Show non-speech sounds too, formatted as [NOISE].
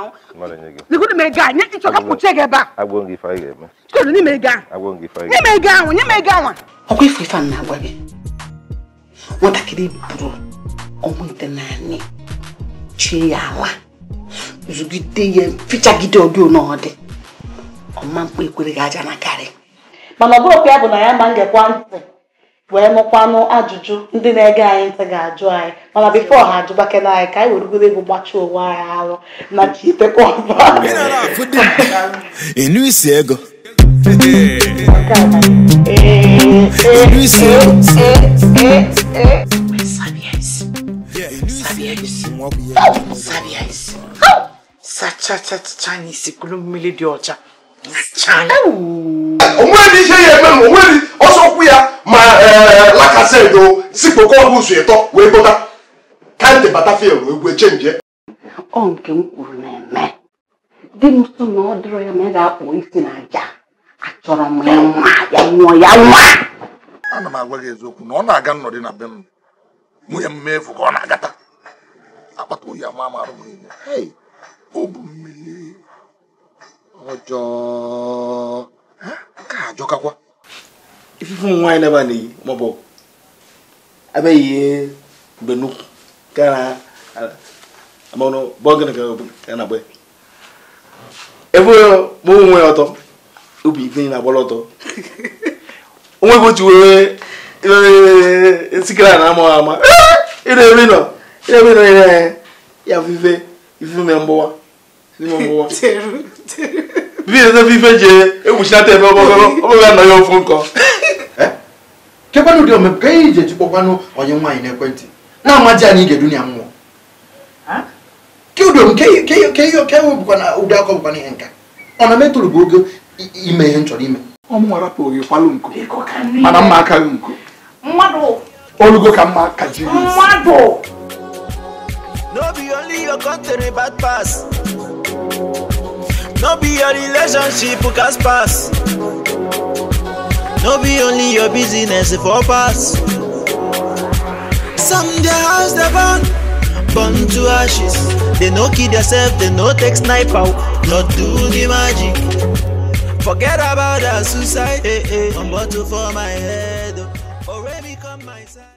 n'ime ego ahụ nye m ego anwa ọkwa ife ife na-agwa gị nwatakịrị buru ọnwụ ite naanị chie ya ala zụgide ya fichagide ọdị n'ọdị ọma mkpa ekwere gị aja na karị ya ya wee mụkwanụ ajụjụ ndị na-ege anyị ntị ga-ajụ anyị mana bifo ha ajụbakela anyị ka anyị werugoro egwu gbachi onwe anyị arụ na chitekwa sachachacha n'isi kuru mmiri dị ọcha ọsọ zipụkwa ọbụzụ ịtọ wee bụta kandị batafil egwu echenjie ọ nke m kwuru na-eme di m so na ọ dịrọ ya ma ị ga-akpụ isi na aja achọrọ m ya nwa ya nwụọ ya nwa ana m agwa gị eziokwu na ọ na-aga nnọdụ na be m nwunye m mee efu ka ọ na-agata akpata oyi ama ama arụ m niile o bụ mmiri ọjọọ ka ajọkakwa ifufe ụmụ nwaanyị na-eba n'iyi maọbụ abịaghị mgbe nnukwu ebụghị m onwe ọtọ obi ife na-agbara ọtọ [LAUGHS] onwe otu were sikira na ama ama ịna nọ ịna nọ ya bụ ife ife ime mgbụwa ime mgbụwa bibi ebe ife ji egwuchinata ebe ọgbọgọrọ nkọ kekwanụ ụdị omepụ ka ihe iji echikpọkwanụ onye nwaanyị n'ekwentị na-amaji anyị ige dunia mmụọ kedom ke webụkwa na ụdị akọ bụkwa ihe nka ọ na metụrụ bụ oge ime ihe nchọrọ chọrọ ime ọmụnwa rapụghị kwalụ nku mana mma akaghị nku olugo ka mma kajiri No be only your country bad pass. No be your relationship cast pass. No be only your business for pass. Some their house they burn, burn to ashes. They no kill themselves, they no take sniper, not do the magic. Forget about that suicide. Hey, hey. I'm bottle for my head. Oh. Already come my side.